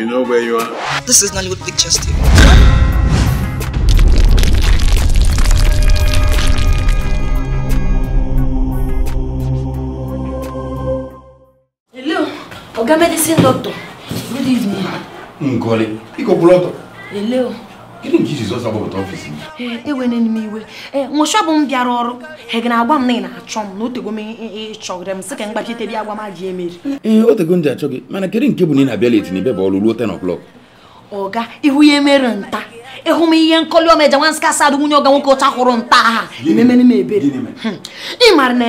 You know where you are? This is Nollywood Pictures TV. Hello, Oga Medicine Doctor. Good evening. Ngoli, Iko Buloto. Hello. gịnị nke iji zọsa gbapụta ọfịs m ewena m iwe ee nwụcha bụ m bịara ọrụ ha gị na-agwa m na ị na-achọ m na otego m ịchọgịrị m sị ka m gbachite m ajị emeri ee otego mana kedụ nke bụ na ị na-abịa leti bụ ọrụ ruo 10 o'clock ọga ya nta ịhụ m ihe nkọli ọmeja nwa nsị kasị nwunye ọga nwoke nta aha ememere m ebere hmm. ị mara na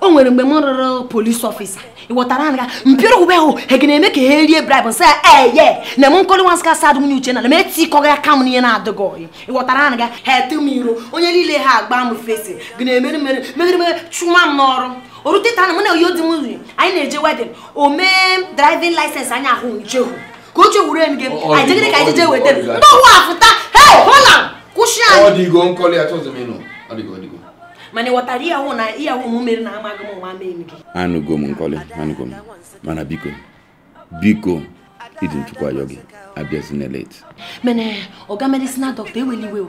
o nwere mgbe m rụrụ polisi ọfịsa iwọtara anga mpiri ube ho hegeneme ka ha rie bribe nsị a na m nkoli nwansị ka sa adịghị uche na m etikọ ya ka m n'ihe na-adịghị ọyị iwọtara anga ha ete m iro onye niile ha agba m fesi gịna-emeri mere megiri mere chụma m n'ọrụ oruteta na m na oyo dị m nri anyị na-eje wedin o mee driving license anyị ahụ nchehu ka o chewuru enyi gị anyị jegide ka anyị jeje weta ndị ọwụ afụta hei hola kwụsị anyị ọdịgo nkoli atụzụ m ịnụ ọdịgo ọdịgo mane ịghọtara ihe iya na ihe na amaghị mo nwa mee gị anụgo m nkọli mana biko biko idin nchụkwa ayọ abịazinela eti mene ọga medịsina dọkịta eweli iwe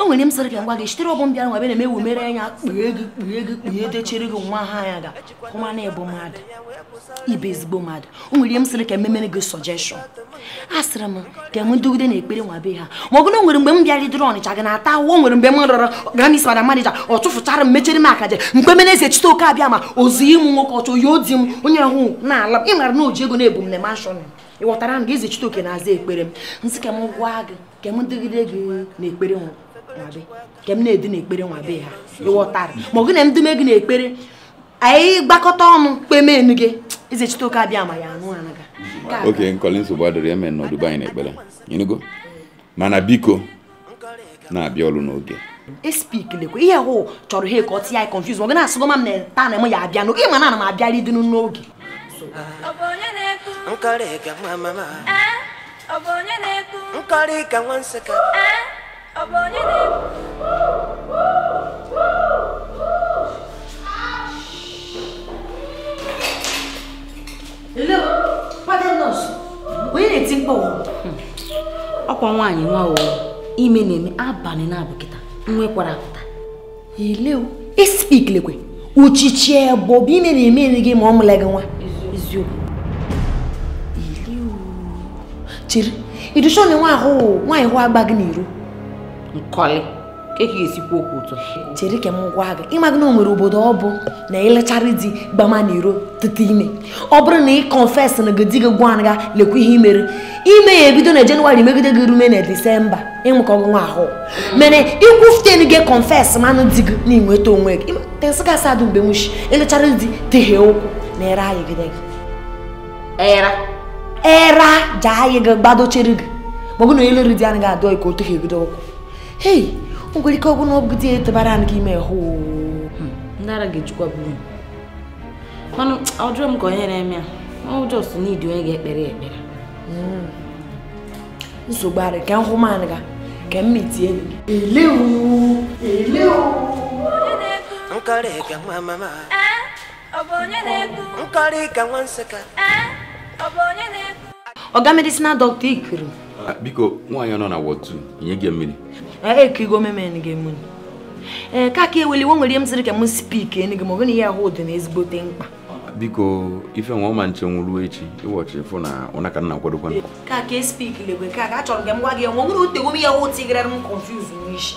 enwere m sịrị gị ngwa gị sitere ọgbọ mbịara nwa bịa na-eme ewumere anya kpughe gị kpughe gị kpughe dechere gị nwa ha anya ga kụma na ịbụ mmadụ ibe ezigbo mmadụ o nwere ihe m sịrị ka ememere gị sọjeshọn a sịrị m ka enwe ndogide na ekpere nwa be ha ma ọ bụrụ nwere mgbe m bịarịdịrị ọnịcha gị na-ata ahụhụ nwere mgbe m rọrọ ganis mana manija ọ chụfụchara m mechere m akaje mgbe mene eze chite oke abịa ma ozi ịmụ nwoke ọchọ ya odi m onye ahụ na-ala ịmara na o ji ego na-ebu m ị ghọtara m gị izi Chitoke na-aza ekpere m nsị ka m gwa gị ka dịgide gị n'ekpere nwabe ka edi na-edu n'ekpere nwabe ha ị ghọtara ma ọ gị na m dume gị n'ekpere anyị gbakọta ọnụ kpemenu gị izi Chitoke abịa ma ya anụ anaga oke nkọli nsogbu adịrị eme n'ọdụbe anyị n'ekpere ịnụgo mana biko na-abịa ọrụ n'oge espik lekwe ihe hụ chọrọ ihe ka ọ tị ya confuse ma ọ gị na-asịgo m na taa na m ya abịa n'oge ịma na ana m abịarị dịnụ n'oge nkọrị ka nwa mama eh? ọ bụ onye na-ekwu nkọrị ka nwa nsịka eh? ọ bụ onye na-ekwu ọkwa nwaanyị nwa o ime na-eme abalị na-abụkịta nwekwara apụta ileo ispik uchichi ebe bụ ime na-eme gị ma ọmụla gị nwa eziokwu chere iducha onye nwa ahụ nwaanyị hụ agba gị n'iro nkọli ka ị ga-esikwu okwu ụtọ chere ka m gwa gị ịmagị na o nwere obodo ọ bụ na ịlechara di gbama n'iro tete ime ọ bụrụ na ị kọnfes na gị di gị gwa ga lekwa ihe imere ime ya ebido na jenụwarị megide gị rume na disemba ịnwekọ gị nwa ahụ mere ikwu ften gị kọnfes manụ di gị na ịnweta onwe gị tesị gasị adụ mgbe nwuchi ịlechara di teghe ụkwụ na ere ayigide gị era jaa ya ga gbadochere hmm, gị hmm. ma ọ eh, na onye lere di ga-adọ ka o teghị ebido ọkwụ hei nwere ike ọgwụ bụrụ di etebara ime hụ ndara ga-ejikwa buru manụ ọjụọ m ka onye eh, na-eme a ọjọs n'idi onye ga-ekpere ekpere nsogbu arị ka nhụ ga ka mma itie gị elewu elewu ka nwa ọga medicinal doctor ikuru ah, biko nwaanyị nọ na wọd 2 nye gị mmiri ekigo eh, memen gị mmiri ee ka ka eweli nwe nwere ihe m sịrị ka m spik enu gị ma ọ bụ na ihe ahụ dị n'ezigbo ezigbote mkpa ah, biko ife nwa ọma nche nwụrụ echi ịwọchị fụ na ọ na ka nna kwadokwa ka e ka spik lebe ka ka chọrọ gị m gwa gị nwe nwere otegom ihe ahụ tigrara m konfuz n'isi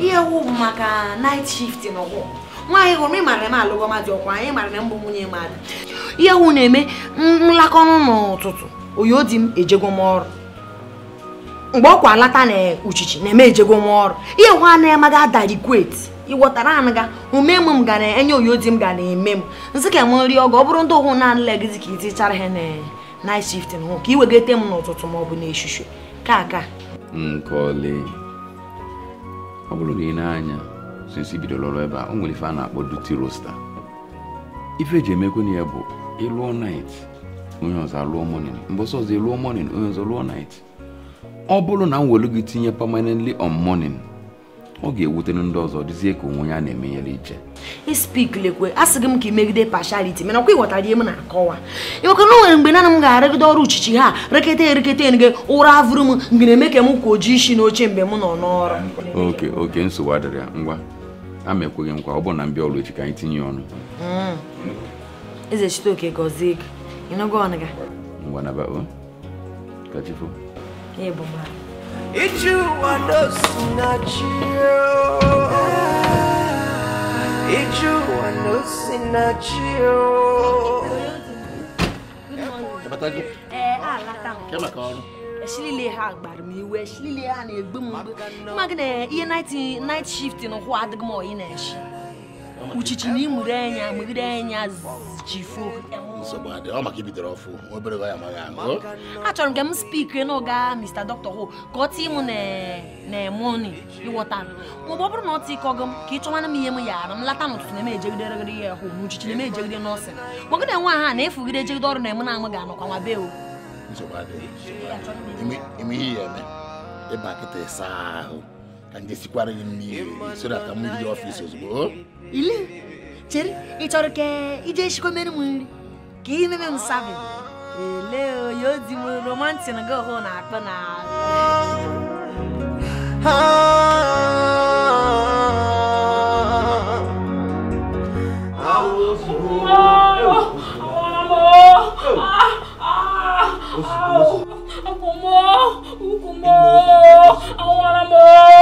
ihe ahụ bụ maka night shift na nwaanyị hụrụ ị mara m alụgo mmadụ ọkwa anyị mara na mbụ nwunye mmadụ ihe hụ na-eme nlakọnụ n'ụtụtụ oyo di m ejego m ọrụ mgbe ọ kwa alata na uchichi na-eme ejego m ọrụ ihe hụ anaghị amaga adarikwet ịghọtara anụ ga ume m m ga na-enye oyo di m ga na-eme m nsị ka m nri ọgọ ọ bụrụ ndị ụhụ na-anụla gịzi ka itichara ha na night shift hụ ka ị wegete m n'ụtụtụ ma ọ bụ n'eshushu ka aka nkọli ọ bụrụ na ị na-anya sinsi bidoro ebe a o nwere ife a na-akpọ duty roster ife eji na ya bụ ịlụọ night onye ọzọ alụọ morning mgbe ọsọ ọzọ ịlụọ morning onye ọzọ lụọ night ọ bụrụ na m welu gị tinye permanently on morning ọ ga-ewutere ndị ọzọ dịzie ka onwe ya na-eme a sị gị m ka imegide pashaliti mana ọkwa ihe na-akọwa ịmaka na mgbe naanị m ga-arịgide ọrụ uchichi ha rekete ereketa enige ụra avụrụ m mgbe na-eme ka m kwa isi n'oche mgbe m nọ n'ọrụ oke oke nsogbu adịrị ya ngwa ama ekweghị nkwa ọ bụ na mbịa ọrụ echi ka anyị tinye ọnụ mm. eze chitoke gọzie gị ịnụgo ọnụ gị ngwa na babo ka chifo ije ụwa n'osi na chi ije oh. ụwa n'osi na chi oh. eh, ọrụ ashilile ha gbara m iwe ashilile ha na-egbu m mgbu mma gị na ihe night shift na ụkwụ adịghị m oyi na-eshi uchichi na imure anya megide anya jifuo achọrọ m ka m spikre na Mr. Dr. Ho ka ọ tii m na-emoni ịghọta maọbụ ọ bụrụ na ọ tịkọgo m ka ị chọwana m ihe m yaara m lata n'ụtụtụ na emejegide ya hụ n'uchichi na emejegide nọọsịn magide nwa ha na-efugide ejegide ọrụ na eme na amụ ga-anọkwa nwa be o imihiyeme ebakite saa ahụ ka nje sikwara gị mmiri so that ka m jide ọfịs ozugbo ile chere ị chọrọ ka ije shikomere m nri ka ị meme m sabi ele oyo di m romantin gị ọhụụ na-akpọ na ah.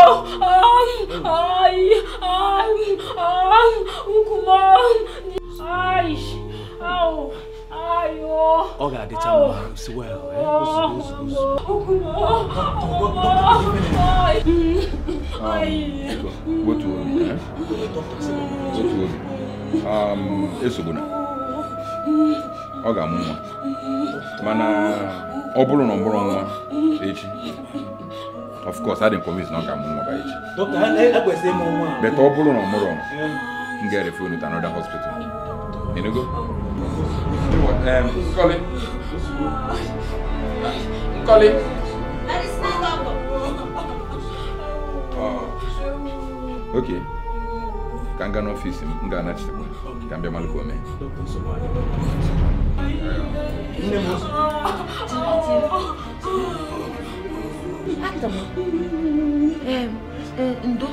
Ai, ai, ai, Ukuman. Ai, ow. Ai, oh. Oga, the time is well, eh? Ukuman. Ai. Ai. Go to worry, eh? Go to worry. Um, Esubuna. Oga, mumma. Mana, ọ bụrụ na ọ bụrụ nwa echi of course I didn't adị nkomis na ọ ga and nwa by echi beta ọ bụrụ na ọ mụrụ m ga a unu to another hospital enugo nkọli nkọli ok ka m gaa n'ọfiisi m m ga-anachitekwa ka m bịa malụ ka o mee nne m ndo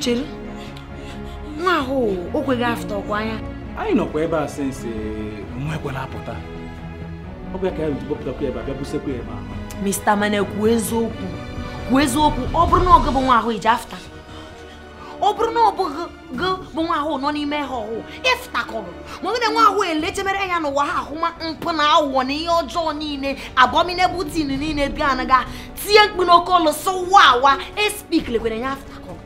chere nwa ahụ o kweghị afụta ọkwa anya anyị nọkwa ebe a sensi nwa ekwela apụta ọ bụ ya ka ya rutu kpọpụtakwa ebe a bịa busekwa ebe a mista mana kwuo eziokwu kwuo eziokwu ọ bụrụ na ọgụ bụ nwa ahụ iji afta ọ bụrụ e e na ọ gị bụ nwa ahụ nọ n'ime ha ọhụụ ịfụtakọrụ e ma ọ bụrụ na nwa ahụ elechebere ya n'ụwa ha ahụma mpụ na aghụghọ na ihe ọjọọ niile abominable tin niile bịa anaga tie mkpu n'oke ọlụ sọwa awa espik lekwere ya afụtakọrụ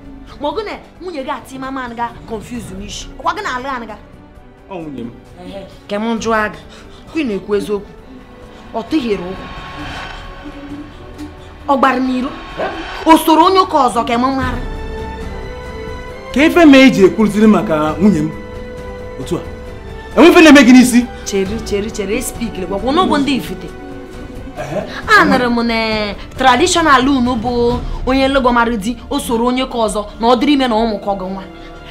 ma ọ gụ na nwunye gị ati mama anaga confuse n'ishi ọkwa gị na alụ anaga ọ nwunye m ke m aga ị na-ekwu eziokwu ọ tụghere ụkwụ ọ gbara n'iro o soro onye ụka ọzọ ka marị ka efe ma e ji ekwurụtiri maka nwunye m otu a enwefe na-eme gị n'isi chere chere e ndị ifite m na eh, tradishọnal unu bụ onye nlogomara di o soro onye ka ọzọ na ọ dịrị ime na ụmụkọ gị nwa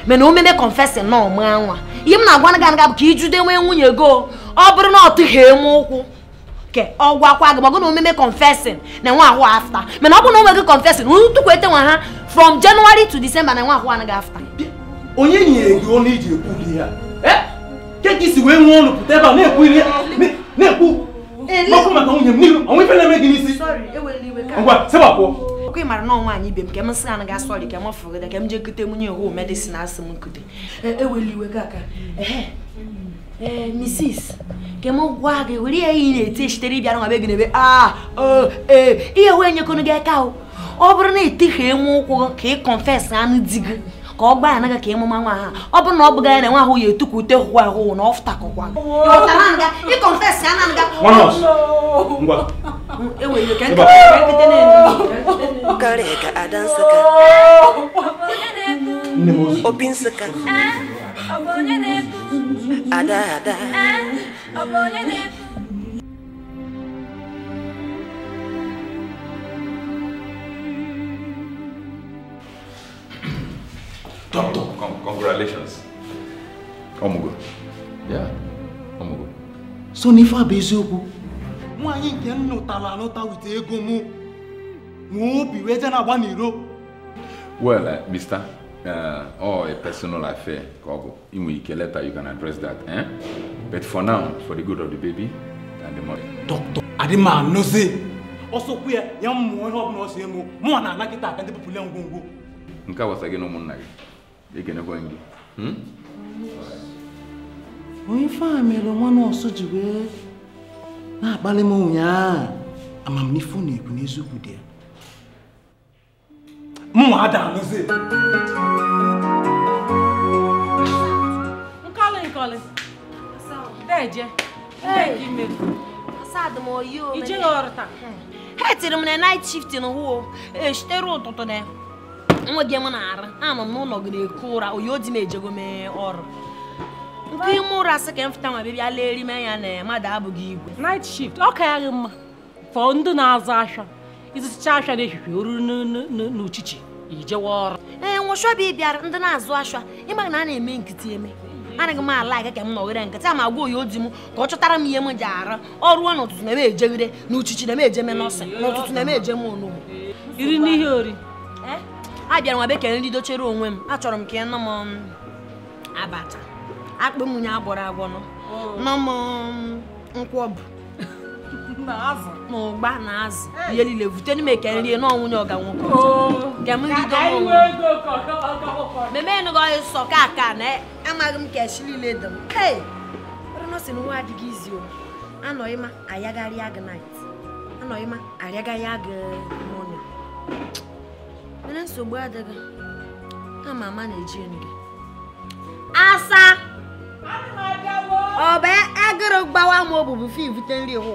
mana o meme na ọma nwa ihe m na-agwa gị bụ ka ijude nwee nwunye go ọ bụrụ na ọ tụghee m ụkwụ ke ọ gwakwa gị magụ na omume confessing na nwa ahụ afta mana ọ bụ na onweghị confessing tukwu ete nwa ha from January to December na nwa ahụ anaghị afta onye nyere gị ọnụ iji ekwu ihe a eh? ke wee nwee ọnụ pụta ebe a na-ekwu ihe na-ekwu okwu maka nwunye m n'ihu m ke m sị anaghị asọrị m m jee kute medicine asị m e, Eh, Mrs. Kemo wage wili ya e ine ite shiteri biyanu nga begine be ah oh eh iye wenye kono ge kao. Obro ne ite he mo ko ke confess anu digi. Ko gba na ga ke mo manwa ha. Obro na obga na nwa ho ye tuku te ho ho na ofta ko kwa. Yo tananga i e confess ananga. One us. Oh, Ngwa. Ewe ye kan ka kete eh, ne. Kare ka adan saka. Obinsaka. Abonene. ada ada ọ Doctor, con congratulations. Yeah, So eziokwu, nwaanyị nke m nụtara anụta ego mụ nwee obi wee je na-agba n'iro. Well, uh, Uh, or oh, a personal affair ka ọ bụ inwe ike later you can address that eh? but for now for the good of the baby and the mother. dọkịta adịma ya ya ọbụla ọ si mụọ na anakịta aka ndị pụpụle ngwongwo nke a gbasa gị na gị ekenekwe gị onye ife mere nwa nọọsụ ji wee na-akpali ụnyaahụ amamnife n'eziokwu de ya mmadamzi nkọlị nkọlị deje ndegi mmiri asadị m oyi o ijeghị ọrụ taa ha É m na night shift n'ụwa não ụtụtụ na nwa gị m na-arụ anọ não, não gị na-eku ụra oyi o di m ejego mee ọrụ nke ime ụra sị ka m fụta nwa bịbịa leri m anya na mmadụ abụghị igwe night shift ọ ka ya gị mma fọọ ndị na-azụ ahịa ịzụcha ahịa n'ehihie o ruru n'uchichi ijewa eh, ọrụ ee nwụchọ ọbịa bịara ndị na-azụ ashwa ịma na a na-eme nkịtị eme anaghị m ala aga ka m nọgide nkịtị ma gwa oyi odi m ka ọ chọtara m ihe m ji ara ọrụ n'ụtụtụ na-eme na uchichi na-eme ejeme nọọsị n'ụtụtụ na-eme iri n'ihe ori eh? a bịara nwa bekee nri dochere onwe m achọrọ m ka um, akpụ agwọrọ n'ụgba na azụ ihe eh. niile vute n'ime e, oh. ka nri na ọnwụ nye ọga nwoke meme enughi ọhị e sọ ka aka na amaghị m ka echi niile dị m ee ọrụnọsi na nwa adịghị izi o anọghịma ayagharị agụ nait anọghịma arịagharị agụ mọnụ mere nsogbu adịghị ama ama na-eji enu asa ọ bụ agụrụ gbawa m obubu fi vute nri wụ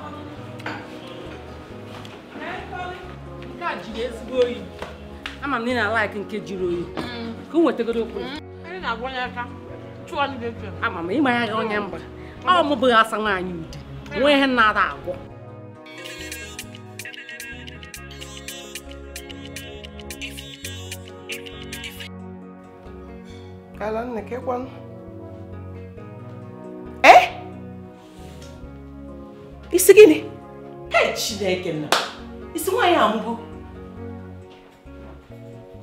jiri ama m na ị na-alaiki nke jiri oyi ka o nwetagoro okwu ama m ịmanya gị onye mba ọ mụbụghị asa nwaanyị ude nwee ihe na-ada agwọ ee e? isi gịnị e chineke na isi nwaanyị amụgo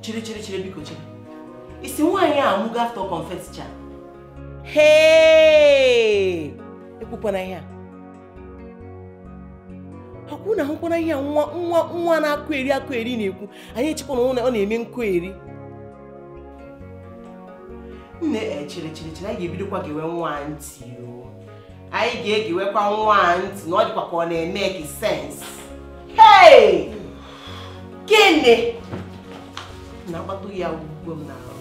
chere chere chere biko chere isi nwaanyị a amụgo after confess hee ekwukwana ihe a akwụ na ahụkwana ihe a nwa nwa nwa na-akụ eri akụ eri na-ekwu anyị echekwa na ọ na-eme nkụ eri nne e eh, chere chere chere anyị ga-ebidokwa gewe nwa ntị anyị ga-egewekwa nwa ntị na ọ dịkwa ka ọ na-eme gị sens hei gịnị na-akpago ya ugbo m n'ahụ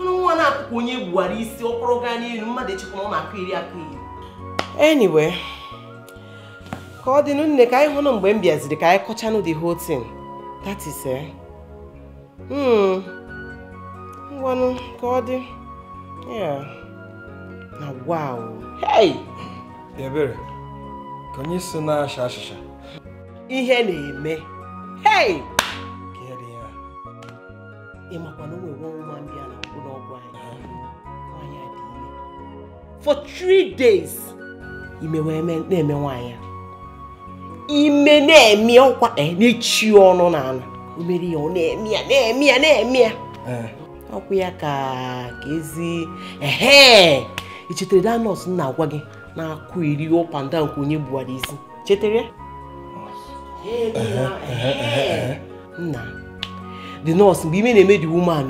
nrụ nwa na-akụkụ onye gbuwara isi ọkpọrọ gaa n'elu mmadụ echekwa ọ na-akụ iri akụ iri anyway ka ọ dịnụ nne ka anyị hụnụ mgbe m bịaziri ka anyị kọchanụ the whole thing that is eh hmm. ngwanụ ka ọ dị na wow hey ebere ka onye si na-acha achịcha ihe na-eme hei kere ya na o a na-akwụ anyị ime for three days ime na-eme nwaanyị ime na-eme ọkwa e, na-echi ọnụ o mere ya ọ na-eme ya na-eme ya na-eme ya e. ọkwụ ya ka ka ezi ehe i chetara da na-agwa gị na-akụ onye gbuwara isi chetere nna the nurse mgbe ime na-eme the woman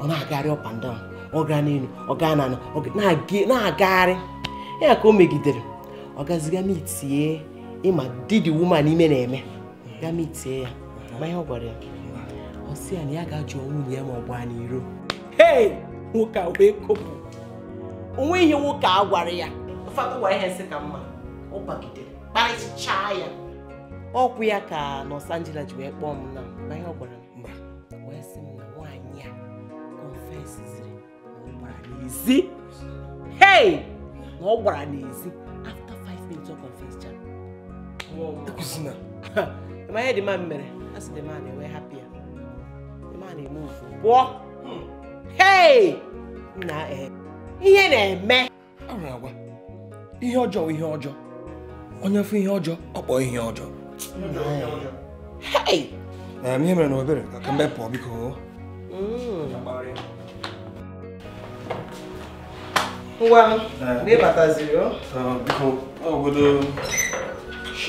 ọ na-agagharị up and down ọ gaa n'elu ọ gaa n'ala na-agagharị ya ka o megidere ọ gaziga mitie ịma di the woman ime na-eme ga mitie ya ma ihe ọ gwara ya ọ sị ya na ya ga-ajụ nwunye ya ma ọ gbaa n'iro nwoke a wee kopụ onwe ihe nwoke a gwara ya ụfọdụ gwa ihe nsị ka mma ọ bagidere kparịchaa ya ọkwụ ya ka nọs Angela ji wee kpọọ m na na ihe ọ gwara m wee sị m na nwaanyị a confesiziri na n'ezi hey na ọ gbara n'ezi afta 5 minutes ọ confesicha e ma ihe dị mma mere a sị dị ma enwe ya ma eme ofu pụọ hey na eh, ihe na-eme ihe ọjọọ ihe ọjọọ onye fụ ihe ọjọọ ọ kpọọ ihe ọjọọ ihe mere na obere ka mbe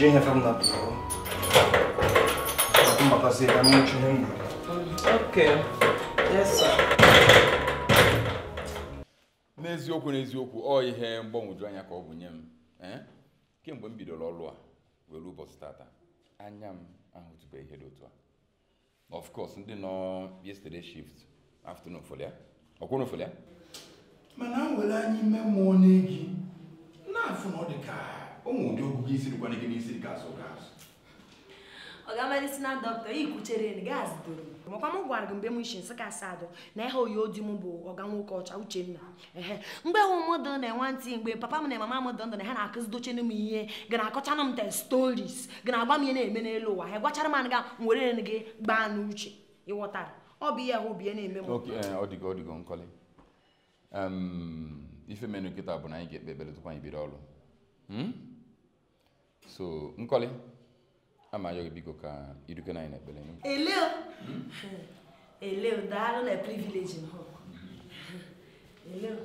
ihe fam na pụọ mbatazi ka m nwụchi ihe m gwuru n'eziokwu n'eziokwu ọ ihe mgbanwoju anya ka ọ bụ nye m eh? kemgbe m bidoro ọrụ a were ụbọchị tata anya m ahụtụbeghị ihe dị otu a of course ndị nọ yesterday shift afternoon fọlịa ọkwụrụ fọlịa mana nwere anyị anya ime mmụọ n'egi na-afụ na ọ dị ka ụmụ ndị ụdị ọgụgụ isi dịkwana gị n'isi dị ka azụ ga azụ ọ ga-amalisi na dọkịta ikwuchere na gaasị doro makwa m gwara gị mgbe m isi nsị kasị adụ na ihe oyi odi m bụ ọga nwoke ọcha uchenna ehe mgbe ụmụdụ na enwe ntị mgbe papa m na mama m dọ ndụ na ha na-akụzi dochenu m ihe gị na-akọchanụ m te storis gị na-agba m ihe na-eme n'elu ụwa ha gwachara m anaga m were gị gbaa n'uche ịghọtara ọ bụ ihe ahụ bie na-eme m eh, ife menu nkịta bụ na anyị ga-ekpe ekpere tupu anyị bido ọrụ hmm? so nkọli ama ayọ gị biko ka na-anya irute anyị n'ekpere eleo eleo daalụ na privileji m eleo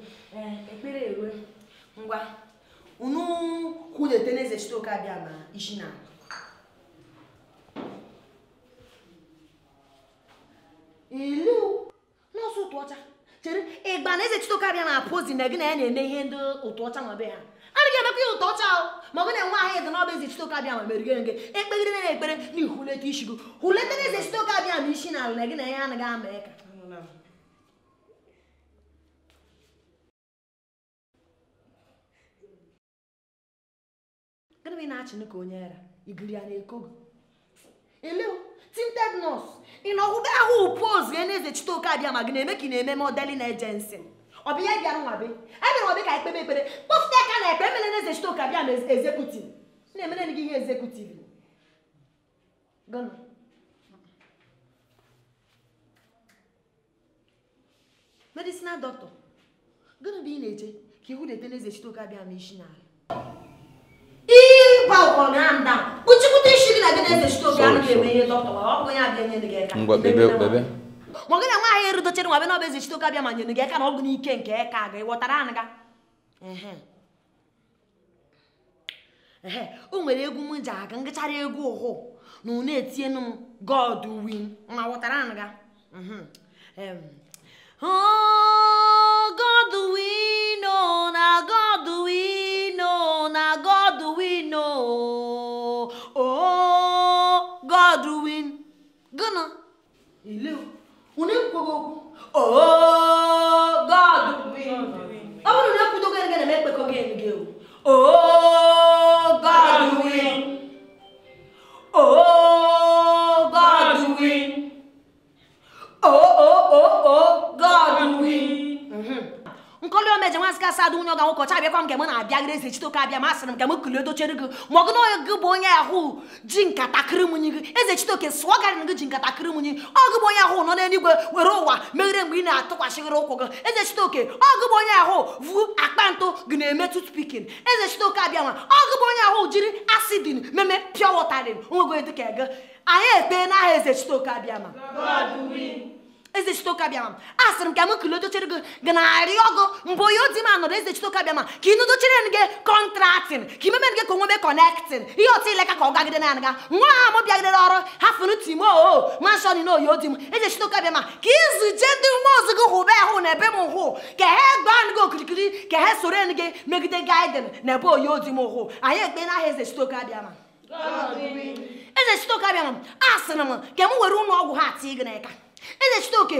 ekpere ewe ngwa unu kwudete n'eze chitoke abịa ma isi na eleo nọọsụ ụtụ ọcha chere ịgba na eze chitoke abịa na pozi na gị na ya na-eme ihe ndị ụtụ ọcha nwa be ha adịghị emekwa ya ụtọ ọcha ma ọ bụ na nwa ahụ eze na ọbụ eze chitoka bịa ma merigere nke ekpegide na ekpere na ihuleta isi gị huleta na eze chitoka bịa ma isi na ala na gị na ya anaghị ama ya ka gịnị ị na-achịnụ ka onye ara igiri ya na-eko gị eleo tinted nọs ị na ọhụbe ahụ poz ya na eze chitoka bịa ma gị na-eme ka na-eme modelin ejensi ọ bụ ya bịara nwabe a bịara nwabe ekpe emele na eze chitoke abịa ma ezekutiv na-emere gị ihe ezekutiv gọnụ medicinal doctor gịnị bụ ị na-eche ka ihu na-ete n'eze chitoke abịa ma isi n'ala ịgba ụkọrọ na mda kpuchikwute isi gị na gị n'eze chitoke anaghị eme ihe dọkta ọ bụ onye abịa nyere gị aka ngwa bebe bebe ma gị na nwaanyị erudochere nwa bịa n'ọba eze chitoke abịa ma nyere gị aka na ọ bụ n'ike nke aka gị ghọtara anụ ga o nwere egwu m ji egwu ụhụ na unu etienu m god win ma ghọtara anụ ga mhm. oh, god win oh, na god win oh, na god win o god win gịnị ile unu ekwugo okwu o god win ọ bụrụ na ekwudogo gị na-eme ekpekọ gị o God will. Oh. eji nwa asị nwunye ọga nwoke chabịakwa m nke m na-abịagide eze chitoke abịa masịrị m nke m kuli dochere gị ma ọgụ na onye gị bụ onye ahụ ji nkata kịrịmụnyi gị eze chitoke sụọ garị na gị ji nkata kịrịmụnyi ọgụ bụ onye ahụ nọ n'eluigwe were ụwa meghere mgbe ị na-atụkwasịghịrị ụkwụ gị eze chitoke ọgụ bụ onye ahụ vu akpa ntụ gị na-emetụ spikin eze chitoke abịa nwa ọgụ bụ onye ahụ jiri asidin meme pịọ wọtarin onwe gị dịka gị anyị ekpee n'aha eze chitoke abịa ma eze chitokabiama a sịrị m ka m kilodochere gị gị narị ọgụ mgbe onye odi m anọrọ eze chitokabiama ka ị nodochere gị kọntraktin ka imemere gị ka onwebe kọnektin ihe otu ileka ka ọ gagide na nga nwa ha m bịagidere ọrụ ha fụrụ timo o manshọn na oyi odi m eze chitokabiama ka izuje ndị nwa ozi gị hụbe ahụ na ebe m hụ ka ha gbaa gị okirikiri ka ha soro gị megide gaiden na ebe oyi odi m hụ anyị ekpe n'aha eze chitokabiama eze chitokabiama a sịrị m ka m were ụlọ ọgwụ ha tii gị n'aka eze chitoke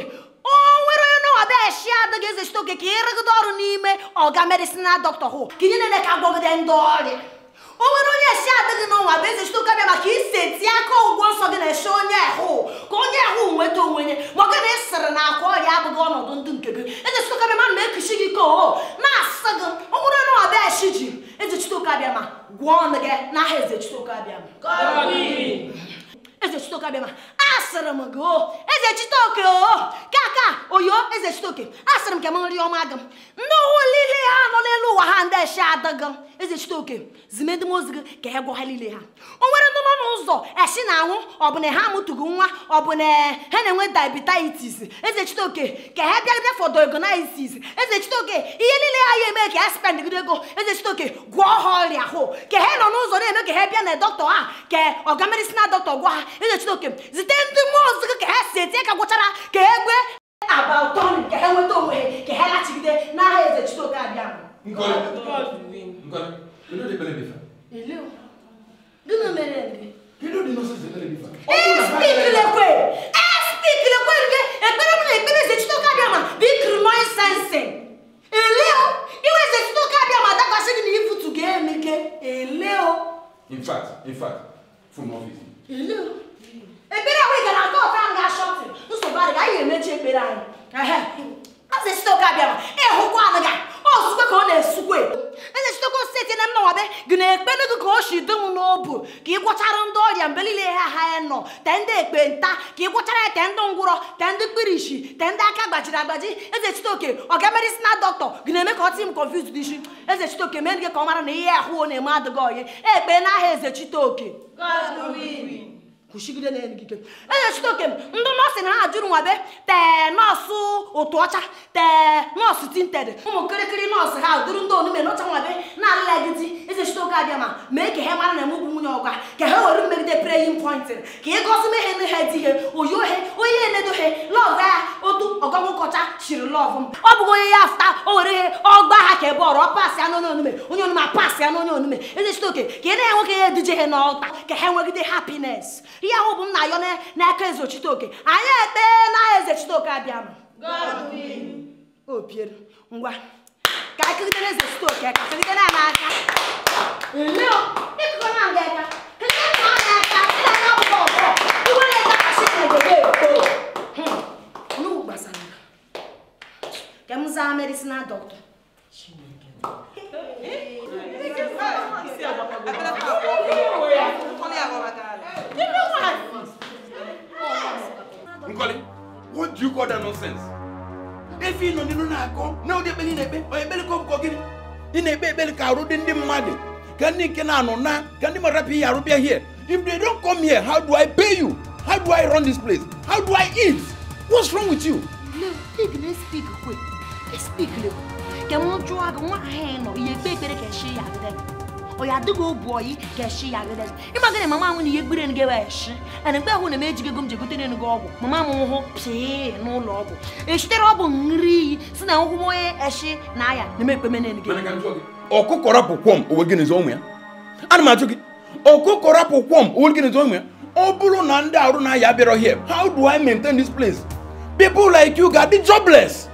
o nwere onye nọwa bịa eshi ada gị eze chitoke ka ịrụgide ọrụ n'ime ọga medisinal dọkta hụ ka ihe na-ele ka agwọgide ndị ọrịa o nwere onye esi ada gị n'ụwa bụ eze chitoke bịa maka ise aka ụgwọ nsọ gị na-eshi onye ahụ ka onye ahụ nweta onwe ya maka na ịsịrị na akwa ọrịa abụghị ọnọdụ ndị nke gị eze chitoke bịa ma na-ekuchi gị ka o na-asị gị o nwere onye nọwa bịa ji eze chitoke abịa ma gwọọ ọnụ gị n'aha eze chitoke abịa Exercito kabema. Asaramango. Oh. Exercito ko. Oh. Kaka oyo exercito ke. Asaram ke manri omagam. No lile ha no lelu wahande shadagam. Exercito ke. Zimend mozga ke ego halile ha. Onwere no no uzo. Eshi na hu obune ha mutugu nwa obune he na nwe diabetes. que ke ke he bia bia for diagnosis. Exercito ke iye lile ha ye me é spend gidego. Exercito ke gwo ho ria ho. Ke he que é uzo na me ke he bia na doctor ha. Ke ogamedicinal doctor gwa é é é é, que que que que que o eze chineke zite ndị mmụọ ozuzo ka ha si etinye o. gwụchara ka e gwe o ụtọ nri ka ha nweta que é que. ha lachibido n'aha eze chineke que é mere ndị espikilekwe espikilekwe nke ekpere m na ekpere eze que é ma bụ ikiri noise sensing eleo que é chineke abịa ma dakwasị gị na ifutu ga ele o. in fact in fact from office ekpere ahụ ị gara aka ọka ahụ ga-ashọtụ nsogbu adịghị anyị ga-emechi ekpere anyị azụ esite ụka bịara ịhụkwa adịghị ọzụzụ ka ọ na-esukwe eze chitekwa steeti na mma wabe gị na-ekpe n'ego ka o si dum n'obu ka ị gwọchara ndị ọrịa mgbe niile ha ha nọ te ndị ekpenta ka ị gwọchara ya te ndị ngwụrọ te ndị kpirishi te ndị aka gbajiri agbaji eze chitoke ọga medisina dọkịta gị na-eme ka ọ tị m konfuz n'isi eze chitoke mee gị ka ọ mara na ihe ahụ na-eme adịghị ọyị ekpe n'aha eze chitoke kwụsịgide na erigide ejechite oke ndị nọọsụ na ha jụrụ nwabe tee nọọsụ otu ọcha tee nọọsụ tinted ụmụ kịrịkịrị nọọsụ ha dụrụ ndị onume n'ọcha nwabe na-alụlagidi ejechite oke abịa ma mee ka ha mara na emegbu nwunye ọgwa ka ha were mmegide preyin pointin ka ịgọzi mehe nhe dị ihe oyi ohe onye na-enedohe lọgụ ya otu lọv m ọ bụghị onye ya afụta o ihe ọ ọgba ha ka ebe ọrụ ọ pasị anụ onye onume onye onume apasị anụ onye onume eze sitoke ka ị na-enwe ka ya eduje ha n'ọta ka ha nwegide hapines ihe ahụ bụ m na-ayọ n'aka eze ochiteoke anyị ete na eze chiteoke abịa opiere ngwa ka akịgidere eze chiteoke ka kegidere ya n'aka Iwere ya kasị na-egode eto. que muzamera isina doctor Nkoli, what do you call that nonsense? Efi nọ nínú na-akọ na ụdị ekpeli na-ekpe ọ ekpeli ka ọbụkọ gịnị? Ị na-ekpe ekpeli ka arụ dị ndị mmadụ ka ndị nke na-anọ na ka ndị mmadụ apịghị arụ bịa here. If they don't come here, how do I pay you? How do I run this place? How do I eat? What's wrong with you? No, pig na-speak quick. Speak, ke mo chua go wa heno ye pe pere ke shi ya gede. O ya de go boy ke shi ya gede. Ima gene mama mu ni ye gbere nge wa shi. Ana gbe hu na meji be gum je gutene ni go ogu. Mama mu ho pse no lo ogu. E shitere ogu nri si na eshi na ya na me pe mene ni ge. Ọkụkọrọ pụkwọm owe gịnị zọ ụmụ ya? Ana m ajụ gị, ọkụkọrọ pụkwọm owe gịnị zọ ụmụ ya? ọ bụrụ na ndị na ya bịara here how do i maintain this place people like you got the jobless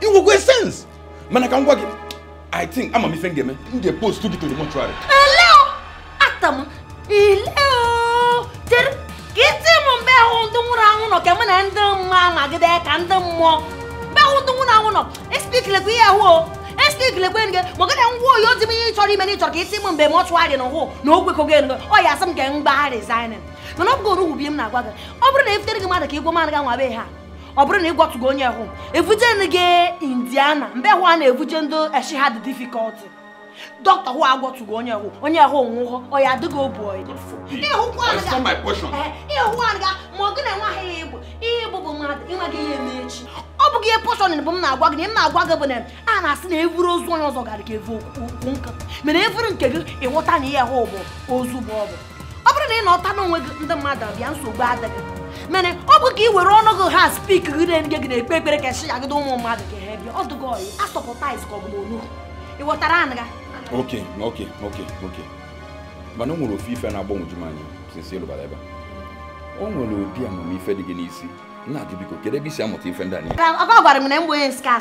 it will make sense mana ka ngwa gị i think ama m ife m ga-eme m ga gị to the mortuary eleo atam ileo tere ka iti m mgbe ahụ ndị nwụrụ anwụ nọ ka mụ na ndị mma magide ka ndị mmụọ mgbe ahụ ndị nwụrụ anwụ nọ espikilekwa ihe ahụ o espikilekwa enge ma gịnị ngwa oyi ozi m ihe ịchọrọ ime na ịchọrọ ka isi m mgbe mortuary na hụ na o kwekọgo enge ọ ya asị m ka m gbaa resignin mana ọ bụgoro ugwu bi m na-agwa gị ọ bụrụ na efutere gị mmadụ ka ịgwa mmadụ ga nwa be ha ọ bụrụ na ị gwọtụgo onye hụ evujenu gị indiana mbe hụ a na-evuje ndị eshi ha dị difikọlti dọkịta hụ agwọtụgo onye hụ onye hụ onwụhọ ọya adịghị obu ọyị ịhụ aga ma ọ gị na nwa ha igbo ihe bụ mmadụ ịnweghị ihe eme echi ọ bụghị ihe pọshọn bụ m na-agwa gị na m na-agwa gị bụ na a na-asị na evuru ozu onye ọzọ gara ka evu okwu nka mere evuru nke gị ịghọta na ihe hụ bụ ozu bụ ọ bụ ọ bụrụ na ị gị ndị mmadụ abịa nsogbu adịghị mana ọ bụ ka ị were ọnụ gị ha spik gị na gị na-ekpe ekpere ka esi agide ụmụ mmadụ ka ha bịa ọdụgo ọyị asọpụtaiz ka ọ bụ onu ị ghọtara anụ ga oke oke oke oke mana o nwere ofe ife na-agbanwoju m anya ịlụbara ebe o nwere obi dị gị n'isi nna gị biko kedu ebe isi amụta ife ndị gwara m na mgbe onye nsika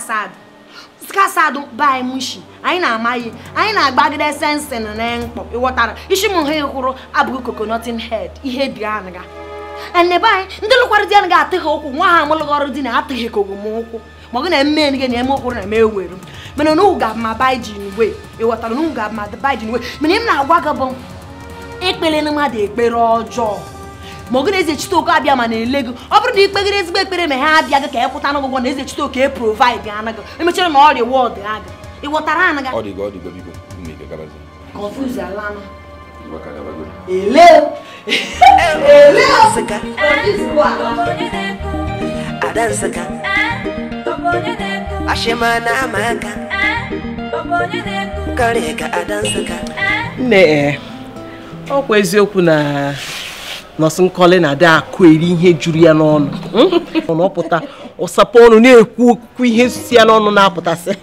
asad mushi anyị na-ama anyị na-agbagide sensin na mkpọ ịghọtara isi m ha kwuru abụghị kokonotin hed ihe dị anga anebe anyị ndị lụkwara dị a ga atịghị ụkwụ nwa ha amụlụghị di na atịghị ka ogwụ m ụkwụ ma ọ na eme nige na-eme ụkwụrụ na-eme ewere mana ga ma baijin we iwotara n'ugwu ga ma baijin we mana m na-agwa gị bụ ekpere na mmadụ ekpere ọjọọ ma ọgụ na-eze abịa ma na-ele gị ọ bụrụ na ekpere ma ha abịa gị ka ịkwụta n'ụgwọ na eze e provaid anaghị emechara na ọrịa wọd aga Adansaka Adansaka ah, Ashima na amaka Kare ka Adansaka ah, Nne ọkwa eziokwu na nọọsụ nkọli na-ada akụ eri ihe juru ya n'ọnụ hmm? ọpụta ụsapụ ọnụ na-ekwu okwu ihe si ya n'ọnụ na-apụtasị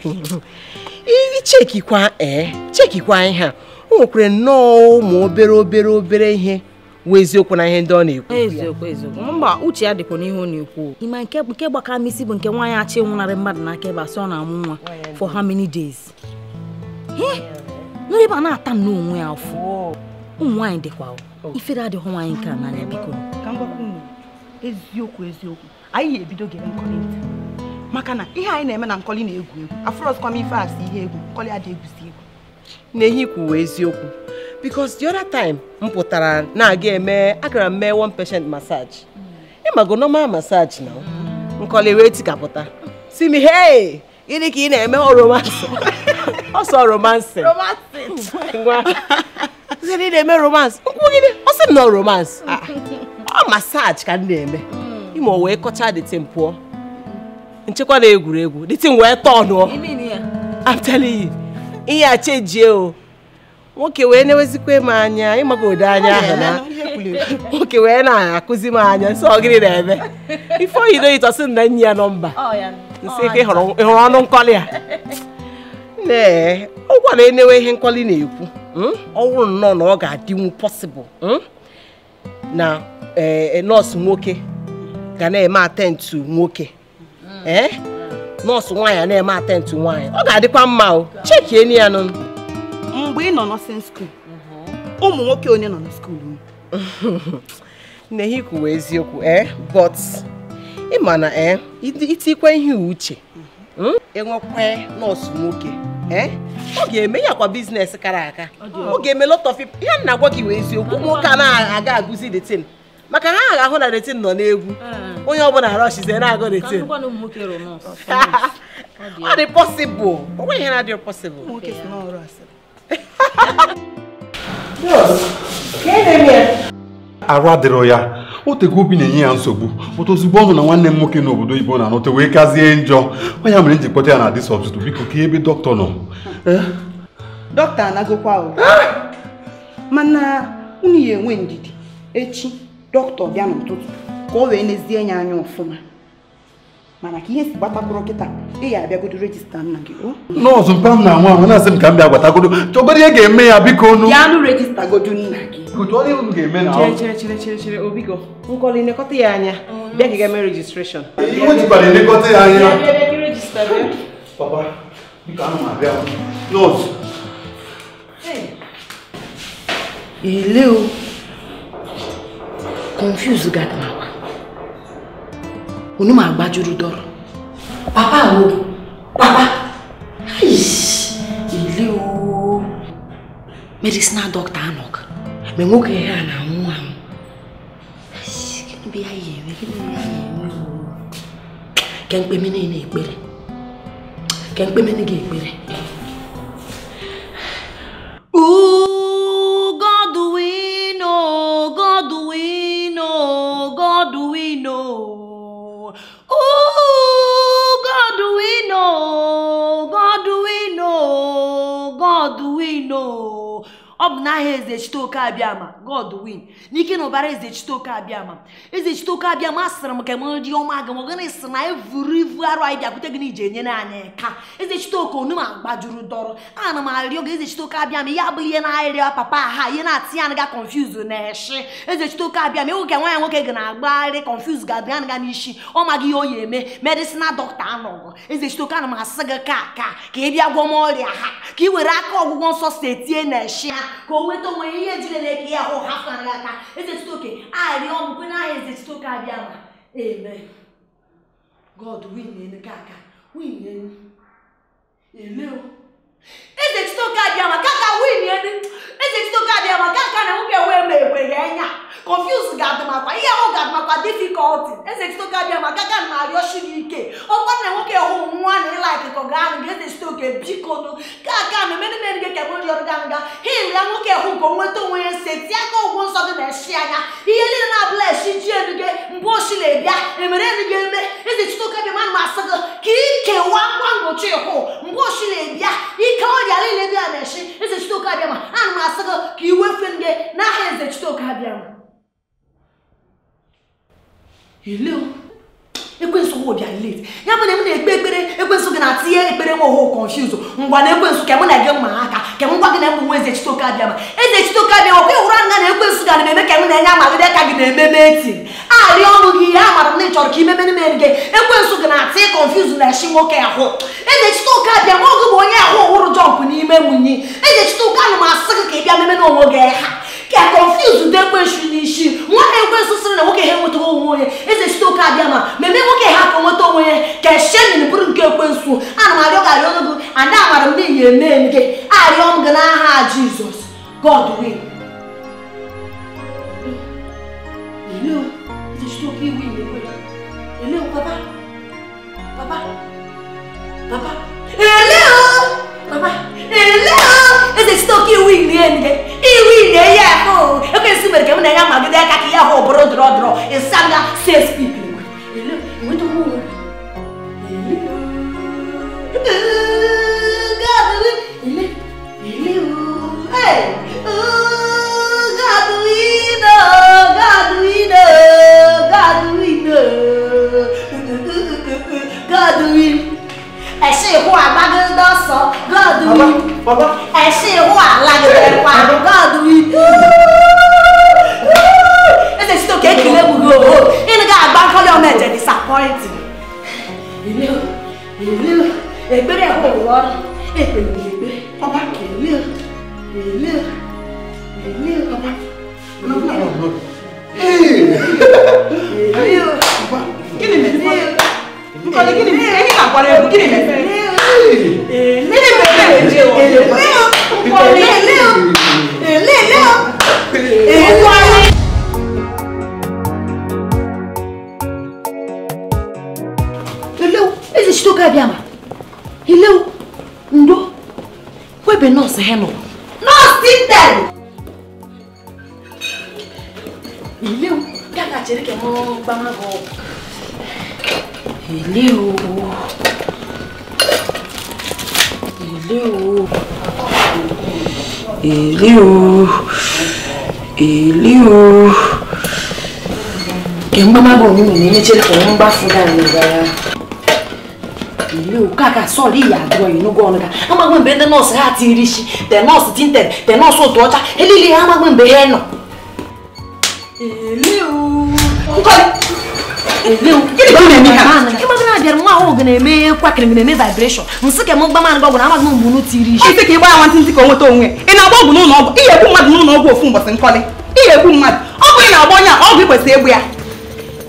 ichekikwa ee eh, chekikwa ihe a o nwekwara nnọọ ụmụ obere obere obere ihe nwe eziokwu na ihe ndị ọ na-ekwu eziokwu eziokwu mba uche ya dịkwa n'ihe ọ na-ekwu ịma nke nke gbakara m isi bụ nke nwaanyị achị nwụnarị mmadụ n'aka ebe asị ọ na-amụ nwa for how many days nri ba na-ata n'onwe ya afọ ụmụ nwaanyị dịkwa ifere adịghị nwaanyị nke a n'anya biko eziokwu eziokwu anyị ga-ebido gere nkọlị maka na ihe anyị na-eme na nkọli na-egwu egwu afụrọsikwa m ife asị ihe egwu nkọli adịghị egwusi egwu na ehi kwuwe eziokwu because the other time m pụtara na-aga eme agara m mee one patient massage ị mago normal massage na nkọli wee tikapụta si m hey gịnị ka ị na-eme oromansi ọsọ romansi ngwa ị na-eme romansi nkwụ gịnị ọ sị m na romansi mm. ah. ọ massage ka m na-eme mm. ime o wee kọcha dịtin pụọ nchekwa na egwuregwu dịtin wee tọnụọ I'm telling you ihe a chejie o nwoke wee na m anya ode anya ahụ na nwoke wee na-akụzi m anya nsị ọgịrị na-eme ife oyido ịtọsị na nyi ya nọmba nsị ka ịhụrụ ọnụ nkọli a nne ọ gwara enewe ihe nkọli na-ekwu hmm? ọ wụrụ nnọọ na ọ ga-adịnwu pọsịbụl hmm? na eh, nọọsụ nwoke ga na-eme atentụ nwoke eh? nọọsụ nwaanyị na-eme atentụ nwaanyị ọ ga-adịkwa mma o chekienu ya nụnụ. mgbe ị nọ nọsin skuul ụmụ nwoke onye nọ na skuul nnehi kwuwa eziokwu ee eh? but ị ma na ee eh, itikwa ihe uche hmm? enwekwa nọọsụ nwoke eh? ọ ga-eme ya kwa biznes kara aka ọ ga-eme lot of ya nna gị wee eziokwu ụmụ nwoke anaghị aga agụzi detin maka ha agha ahụ na detin nọ n'egwu onye ọbụla rọshize na-agụ detin ọ dị pọsịbụl o nweghị ihe na-adịghị pọsịbụl arụ adịrọ ya o otego obi na-enye ya nsogbu ụtụ ozugbo ọ nụ na nwanne m nwoke n'obodo oyibo na-anọta wee kazie njọ ya mere m ji kpọta ya na dis ọtụtụ biko ka ebe dọkịta nọ eh? dọkịta anagokwa eh? mana unu ya enwe ndidi echi dọkịta bịa n'ụtụtụ ka o wee nezie ya anya ọfụma mana ka ihe si gbatakwuru kịta ị ya abịagodo rejista nna gị o nọọsụ mpa m na anwa anwa na-asị m ka m bịa gbatagodo chọgodo ihe ga-eme ya biko onu ya anụ rejista godo nna gị chere obigo nkọli elekọta ya anya bịa ka ga-eme rejistreshọn ihe o jikwara elekọta ya anya papa biko anụ abịa nọọsụ ile o confuse gata onu ma gbajuru dọrọ papa wo papa ile o medicinal doctor anọk ma nwoke ihe a na-anwụ anwụ gịnị bụ ya ya eme gịnị bụ ya ya eme ke mkpeme niile ekpere ke ekpere God we know, God we know, God we know. Oh, God, do we know? God, do we know? God, do we know? ọ bụ n'aha eze chiteoke abịama god win n'ike na ụbara eze chiteoke abịama eze chiteoke abịama sịrị m ka m dị ọma gị mọgana sị na evurivu arụ anyị bịakwute gị n'ije enyere anyị ka eze chiteoke onu ma gbajuru dọrọ ana m arịọ gị eze chiteoke abịama ihe abụghị ihe na-arịọ papa ha ihe na-atị ya ga konfuz na eshi eze chiteoke abịama ewu ka nwa nwoke gị na-agbagharị konfuz ga-adịga nga n'isi ọ maghị ihe o yi eme medisina dọkịta anọgọ eze chiteoke ana m asị gị ka ka ka ị bịa gwọ m ọrịa ha ka ị were aka ọgwụgwọ nsọ si etinye na eshi ha ka o nweta onwe ihe jire na-eke ya ahụ ha fara aka oke a arịọ m kwe na eze ezetụta oke abịa ma eme god win aka win o. ezechitoka dị ama kaka win ezechitoka dị ama kaka na nwoke wee ma egwe ya enya confuse ga-adị makwa ihe ahụ ga-adị makwa difficulty ezechitoka dị ama kaka na arịọchi gị ike ọkwa na nwoke hụ nwa na ịlaik kọgaanụ ga ezechitoke bikonu kaka na emenumere gị ka mori ọrụ ganga hil ya nwoke hụ nke onweta onwe ya nse tie aka ụgwọ nsọ gị na-eshi anya ihe niile na-abụla eshi ji elu gị mgbe oshi na-ebịa emere elu gị eme ezechitoka dị ma na asị gị ka ikewa ngwa ngochi hụ mgbe oshi na-ebịa ike ọ dịara ile bịa na-echi eze Chitoke a ana m asị gị ka i wefee ndị n'aha eze Chitoke Abiama ekwensu m bịa late ya bụ na m na-ekpe ekpere ekwensu gị na-atinye ekpere nwa oho confuse ngwa na ekwensu ka m na gị mma aka ka m gwa gị na m bụ nwa bịa chitoke abịa ma eze bịa ọkwa ịhụrụ anya na ekwensu ga na-eme ka m na-enye amagide ka gị na-ememe eti arịa ọnụ gị ya mara na ị chọrọ ka imemere mere gị ekwensu gị na-atị confuse na echi nwoke ahụ eze chitoke abịa ma ọgụ bụ onye ahụ ọhụrụ jọmpụ n'ime nwunye eze chitoke m asị gị ka ị bịa meme onwe gị ha ke a confuse de kwe shu ni shi nwa e kwe so sene wo ke he nwoto wo ye e se sto ka bia ma me me wo ke ha ko nwoto wo ye ke she ni ni buru nke kwe nsu ana ma yo ga yo no bu ana ma ro mi ye me ni a ri om gna ha jesus god will hello e se sto ki wi ni kwe hello papa papa papa hello Papai, hello! Ese é o wini né? E o wini é ho. Eu quero que eu não tenho mais ideia que aqui é ho o dro dro. E sabe se speak. Hello, é muito bom. Hello. Hello. Hey. Gaduino, Gaduino, Gaduino, Gaduino. ẹ ṣe ìhó àgbágédé sọ gọọdù yìí ẹ ṣe ìhó àlàgẹdẹ pa gọọdù yìí ẹ ṣe sítò kéèkì lẹ́wùrú o ìnìkà àgbáńkọ́lé ọmọ ẹ̀jẹ̀ disappoint ìlú ìlú ẹgbẹ́rẹ́ ẹ̀hó wọ́ èpè ìgbẹ́ ọba kìlú ìlú ìlú ọba. Hey! Hey! Hey! Hey! Hey! Hey! Hey! Hey! Hey! àpárá ẹ̀kú kí ni mẹ́fẹ́. èlé mẹ́fẹ́ èlé o èlé o púpọ̀ èlé o èlé o èlé o. Eleu, ezi shi toka abịa ma. Eleu, ndo, webe nọọsụ ha nọ. Nọọsụ Tintel! Eleu, ga ga-achere ka m gbama gị ọgwụ èlé o èlé o èlé o èlé o kẹ̀ ń bá má bọ̀ ní mi ní méjì kọ̀ ń bá fún dáa ní ìgbà èlé o káàkà sọ̀rí ìyàgbọ́ ìnúgọ́ ọ̀nà dáa amagbọ̀nbẹ́ tẹ nọ́ọ̀sì á ti rí sí tẹ nọ́ọ̀sì tí ń tẹ̀ tẹ nọ́ọ̀sì òtò ọjà eléyìí amagbọ̀nbẹ́ ẹ̀ nà èlé o ịgbagana bịara dear. ahụ ga na-eme kwakịrị ga na-eme vibration nsị ka m gba mana gbagwara amaghị m mgbe unu tiri isi ka ị gbaa nwantị ntị ka o nweta onwe ị na-agba ọgwụ n'ụlọ ọgwụ ihe ekwu mmadụ n'ụlọ ọgwụ ofu mbọsị nkọlị ihe ekwu mmadụ ọgwụ ị na-agba onye a ọgwụ ị kwesịrị egbu ya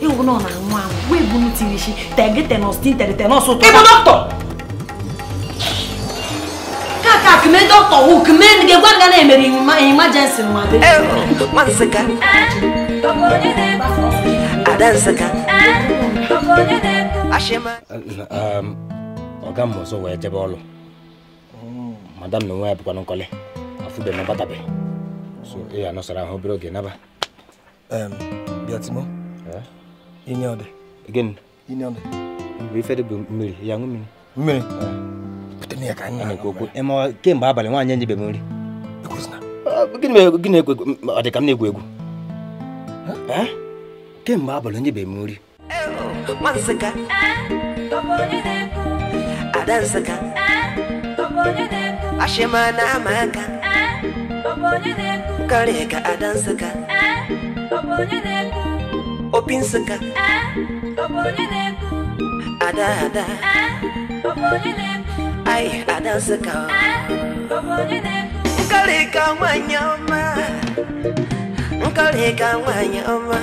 ịwụ nọ na nwa ahụ wee bu tiri isi tege tenọs tin tere tenọs ụtọ ịbụ dọkịta kaka kume dọkịta wụ kume ga-egwa nga na-emere imajensi nwa Ada ah. um, ọzọ wee jebe ọlụ madam na onwe ya bụkwa nkọli afụbe nabatabe so ị nọsara ahụ obere oge naba bịatimo ọdị ọdị mgbe ife dị bụ mmiri ya ṅụ mmiri mmiri eh. kemgbe abalị nwaanyị enyebeghị m nri ah, gịnị ekwe ọ dị ka m na-egwu egwu ke mgbe abalị onye be m nri ashịmana ama aka karịa ka ada nsụka opi nsụka ada ada ai ada nsụka nkarị ada nwanyị ọma nkarị ka nwanyị ọma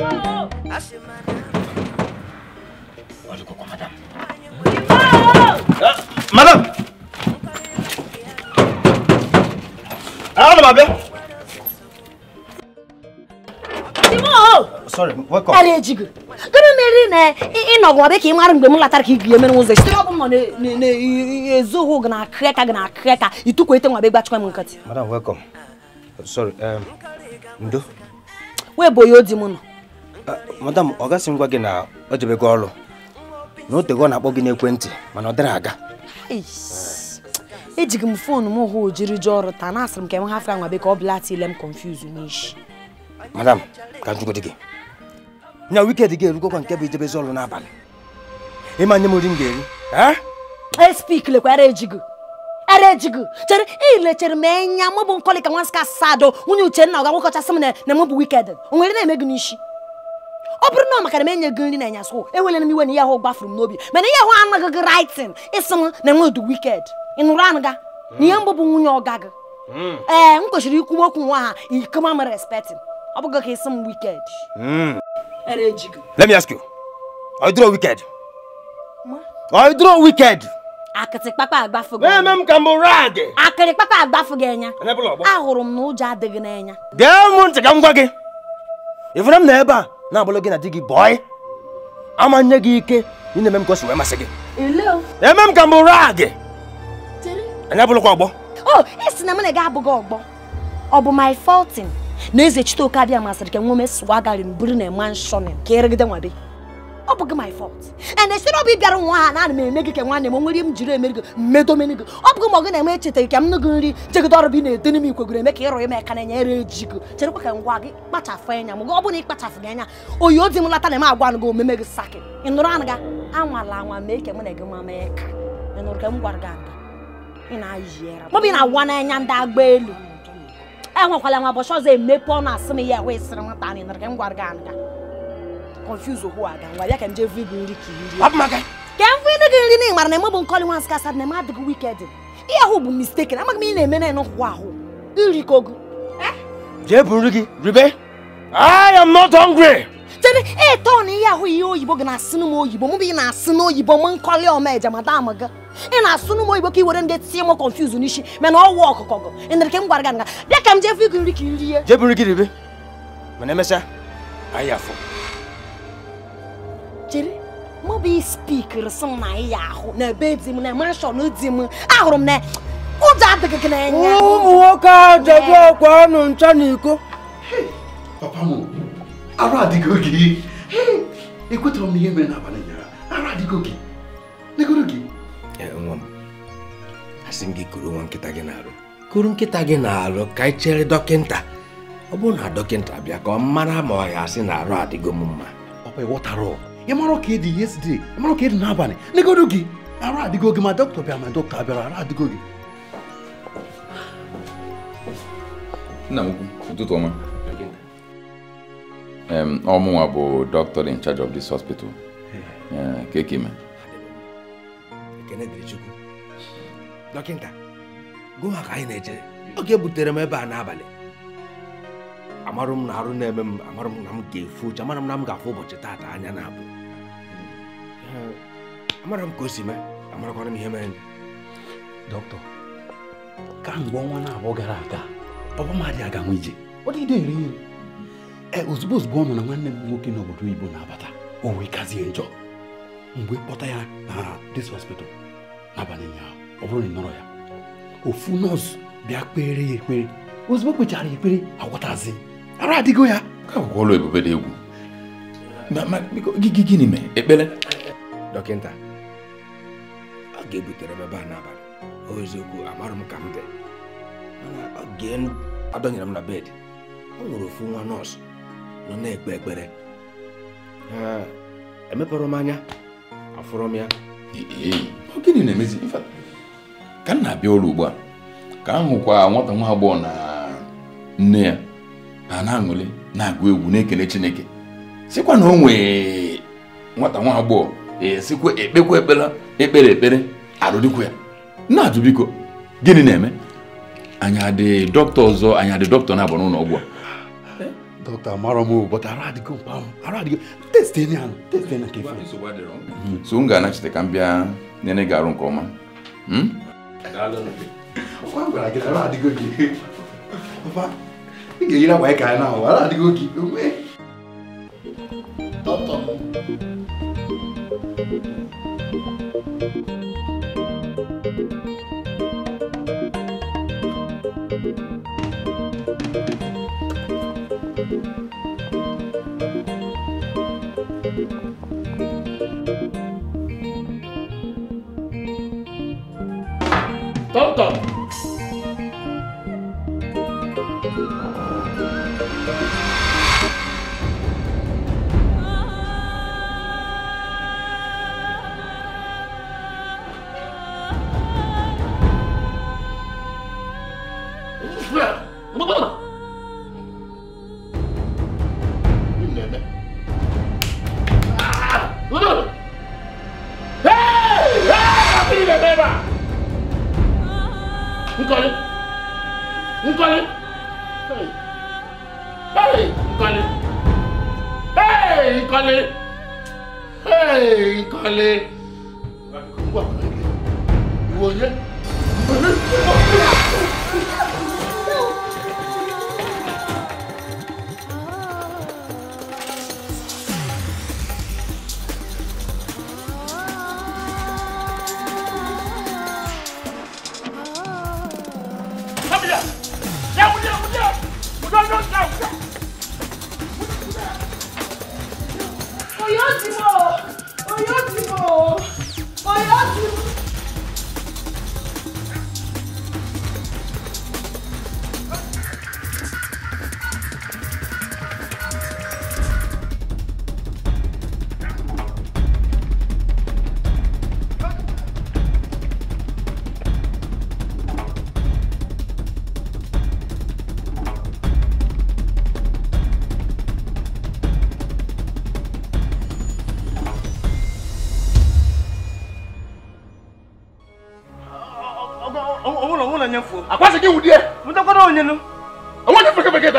madam ana ma bịa sorry welcome ara ejigo gịnị mere na ịnọgụ ọbịa ka ị mara mgbe m latara ka ị gụnye mere ụzọ sitere ọbụ m nọ na-ezoghụ gị na akịrịka gị na akịrịka itukwa madam welcome sorry um, ndo Where bụ ya odi Ah, madam ọ gasị ngwa gị na o jebego ọrụ na o tego ọ na-akpọ gị n'ekwentị mana ọ dịrị aga ejighị m foonu m hụ ojiri ji ọrụ taa na asịrị m ka enwe hafe anwa beka ọ bụla tile m confuse n'ishi madam ka njugodi gị nya wikendi gị erugokwa nke bụ ijebezi ọrụ n'abalị ịma nye m nri m ga-eri espik eh? e, lekwara ejigo ara ejigo chere ilechere m enya mụ bụ nkọlị ka nwa nsị ka sado nwunye uchenna ọ ga-agwakọchasị m na mụ bụ wikendi o nwere na-eme gị n'isi ọ bụrụ na ọ maka na m enye eu nri na anyasụ enwere m iwe na ihe ahụ gbafuru m n'obi mana ihe ahụ anaghị gị raịtin ịsị m na enwe du wiked ị nụrụ anụ ga na ihe mbụ bụ nwunye ọga gị hmm. ee m kwesịrị ikwu okwu nwa ha ikoma m respektin ọ bụghị ka ịsị m wiked hmm. Let me ask you. Are you draw wicked? Are you draw wicked? akịtị kpakpa agbafu gị eme m ka m rag akịrị kpakpa agbafu gị anya ahụrụ m na ụjọ adịghị n'anya gee m ntị ka m gwa na ebe na-abụrụ gị na di gị bọị ama nye gị ike ị na-eme m ka si wee masị gị eme m ka m bụrụ gị anyị abụrụkwa ọgbọ o esi na m na gị abụghị ọgbọ ọ bụ my na eze chiteoke abịa masịrị ka nwome ome sụwa garị na eme nshọnin ka erigide nwa ọ bụghị my fault and esi na ọ nwa ha na ana eme gị ka nwanne m nwere m jiri emere gị mmedomene gị ọ bụghị ma ọ na-eme echetaghị ka m nụ gị nri jegide ọrụ bụ na-ete n'ime ikwe eme ka ịrụ ime aka na-enyere eji gị cherekwa ka ngwa gị kpachafụ anya m gị ọ bụrụ na ị gị anya oyi ozi m lata na m agwa gị omeme gị saki ị nụrụ anụ gị anwala anwa mee ka mụ na gị nwa ka ị nụrụ ka m gwara gị aga ị na-ayịra mọbụ ị na-awa n'anya ndị agba elu enwekwala nwa ụbọchị ọzọ emepe ọnụ asị m ya wee sịrị nwata anyị nụrụ ka m gwara gị anụ confuse ohu ada nwa ya ka nje vu ibu nri ka iri ka m fụ gị nri na ị mara na emebụ nkọli nwa nsị asad na eme adịghị wiked ihe ahụ bụ mistake na amaghị m ị na-eme na ịnọkwụkwa ribe I am not hungry. Tene, eh, ton ihe ahụ ihe oyibo gị na-asị n'ụmụ oyibo mụ bụ ị na-asị n'oyibo m nkọli ọma eje madam gị ị na-asụ n'ụmụ oyibo ka i were ndị tinye m confuse n'isi mana ọwụ ọkụkọ gị ịnere ka m gwara gị nga bịa ka m i rie chere mụ bụ spikiri sị m na ị ya ahụ na ebe dị m na manshọn di m ahụrụ m na ụjọ adịghị gị n'anya ụmụ nwoke a jebu ọkwa ọnụ ncha na iko papa m arụ adịgo gị ekwetara m ihe mere n'abalị ụnyaahụ arụ adịgo gị negoro gị nwa m asị m gị kuru nwa nkịta gị na-arụ kuru nkịta gị na-arụ ka anyị chere dọkịnta ọ bụrụ na dọkịnta bịa ka ọ mara ma ọ ya asị na arụ adịgo m mma ọ bụ ịghọtara ịmara ka ịdị yesterday ịmara ka ịdị n'abalị negodo gị ara adịgo gị ma dọkịta bịara ma dọkịta abịara ara adịgo gị nna m ukwu ụtụtụ ọma ọmụnwa bụ in charge of this hospital keke e ime dọkịta ka anyị na oge butere m ebe a n'abalị amarụ m na arụ na-eme m amarụ m na m ga-efu uche amarụ m na m ga-afụ ụbọchị taata anya na-abụ amara m ka o si mee amarakwana m ihe mere dọkịta ka mgbe ọnwa na-abụọ gara aga ọbụmadị aga nwe ije ọ dị ere ere ee ozugbo ozugbo ọ nọ na nwanne m nwoke n'obodo oyibo na-abata o wee kazie njọ mgbe kpọta ya na dis hospital n'abalị ụnyaahụ ọ bụrụ na ị nọrọ ya ofu nọọsụ bịa kpere ya ekpere ozugbo kpechara ya ekpere agwọtazi ara adịgo ya ka ụlọ ebube dị egwu gịnị mee ekpere dọkịta ọ ga-ebutere m ebe a n'abalị o eziokwu amarụ m ka m dị mana oge adọnyere m na bed ọ nwere ofu nwa nọọsụ nọ na-ekpe ekpere emepere m anya afụrụ m ya gịnị na-emezi ka m na-abịa ụlọ ugbu a ka m hụkwa nwata nwa agbọghọ na nne ya ha na-aṅụli na-agụ egwu na-ekele Chineke sịkwa na o nwee nwata nwa agbọghọ esikwa ekpekwa ekpere ekpere ekpere arụdịkwa ya na-ajụ biko gịnị na-eme anyị dị dọkịta ọzọ anya dị dọkịta na-abụ n'ụlọ ọgwụ a dọkịta mara m but ara adịgo mkpa arụ adịgo testi enyi ahụ testi enyi hmm, so m ga-anachite ka m bịa nyere gị arụ nke ọma hmm? ị ga-eyiri akwa ka anyị na-ahụ adịgo gị dọkịta Tonto. Hey, Kọ́lé! Hey, Kọ́lé! Ìwọ yẹ.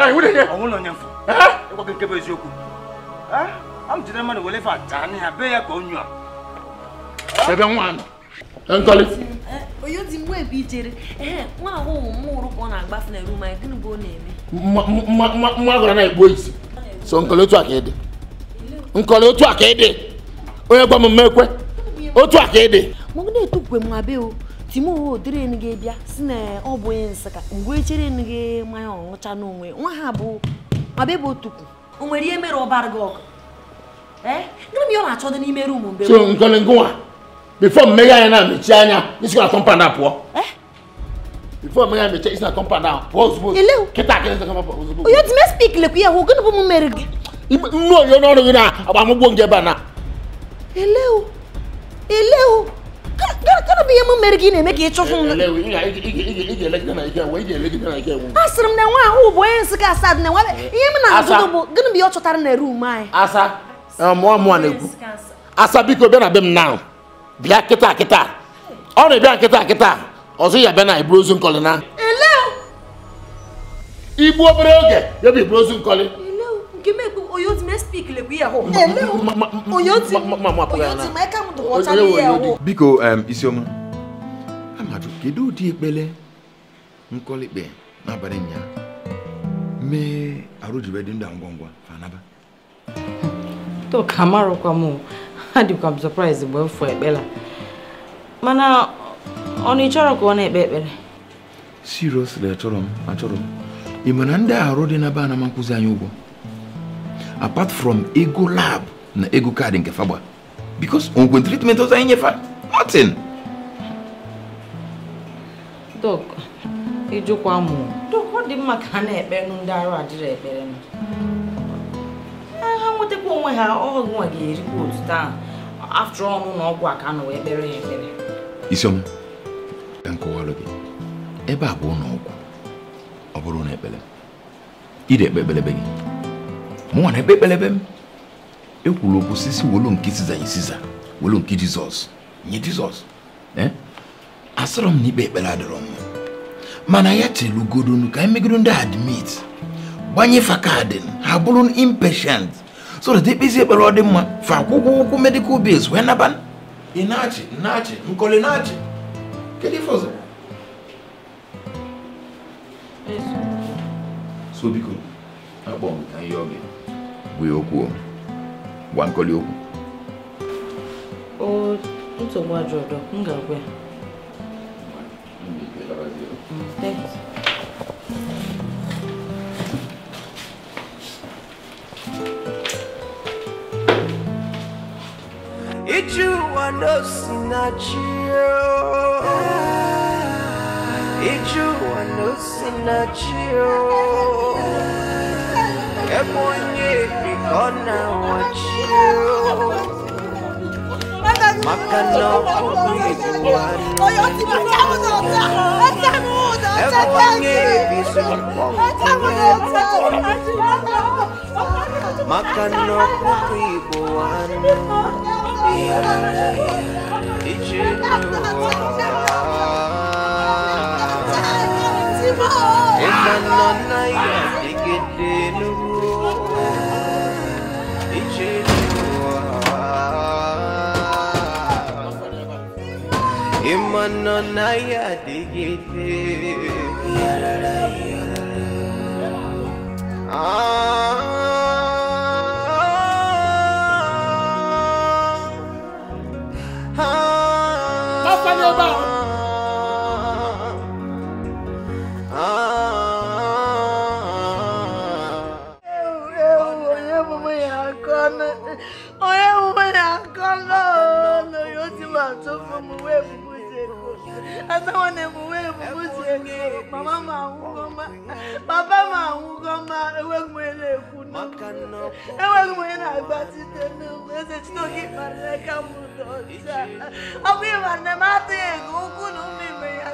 ịgwa nke bụ eziokwu a m jide mmadụ wele fa ataa n'ihe be ya ka onye a ebe nwa nọ nkọli onye mgbe ebe ijere nwa ahụ ụmụ mmụrụ ka ọ na-agbafe na rum anyị gịnị bụ ọ na-eme nwa agụrụ na-egbu isi so nkọli otu a ka ịdị nkọli otu a ka ịdị onye gwa m ekwe otu a ka ịdị mụ na-etukwe m abịa o timowe odịrị gị bịa si na ọ bụ onye nsịka mgbe chere gị mmanya ọṅụcha n'onwe nwa ha bụ mabebe otukwu o nwere ihe mere ọbara gị ọgụ gịnị ọ na-achọ dị n'ime rumu mgbe ngwa bifo mmeghe anyị na anya isi na onye gịnị bụ m mere gị nnu onye gị na agbamụgbo nge ebe a na gana bụ ihe m mere gị na-eme ka ịchụfụ m asịrị m na nwa ahụ bụ onye nsị ka asad na nwa ihe m na-azụdụ bụ gịnị bụ ihe ọ chọtara na rum anyị asa mụọ mụọ na-ekwu asa biko bịa na be m na bịa kịta kịta ọ na-ebịa nkịta kịta ọzọ ya bịa na iburu ozu nkọlị na ele igbu obere oge ya bụ iburu ozu nkọlị biko isioma amadu kedu ụdị ekpele nkọlikpe n'abalị ụnyaahụ mee arụjibe ndụ ngwa ngwa fanaba toka amarụkwa m adịkwa m surprise mgbe m fụ ekpela mana ọ na ịchọrọ ka ọ na-ekpe ekpere seriously achọrọ m achọrọ m ị ma na ndị arụ dị na be anama nkụzi anyị ụgwọ apart from ego lab na ego kaadị nke fagba because onwe treatment ọzọ anyị nyefa nothing dok ịjụkwa mụ dok ọ dị mma ka ha na-ekpe nụ ndị arụ adịrị ekpere ha nwetakwa onwe ha ọnwa ga-erikwa otu taa after ọnụ na ọgwụ a ka a nọwa ekpere ha ekpere isiom ka m kọwalụ gị ebe a bụ ụlọ ọgwụ ọ bụrụ na ekpere ị na-ekpe ekpere gị mụnwa na ekpe ekpelebe m ekwuru okwu sisi nke siza nye siza nke jizọs nye jizọs eh? asịrọ m na ikpe ekpere adịrọ m mana ya telugodonu ka emegodo ndị admit gbanye fa kaadị ha bụrụ impatient so that ekpezi ekpere ọ dị mma fa akwụkwọ ụkwụ medical bills okwu gwa nkoli okwu o nsogbu ajọ ọdọ m ga-agwa ya Thanks. Ijua no sinachio Ijua no sinachio ebonye bikona wachiyo makana okuyiwana ebonye makana okuyiwana I ya digite. Ah. emewo na emume emume ziri ego mama m ma papa m anwụgo ma enweghị m onye na-ekwu enweghị m onye na site n'ụmụ eze chinoke kparịrị ka m ụdọ ọcha ọ bụ ịma nne m atụghị ego ụkwụ na ụmụ ime ya